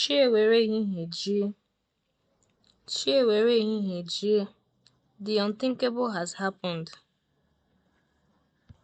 Chi ewere ehihie jie, The unthinkable has happened.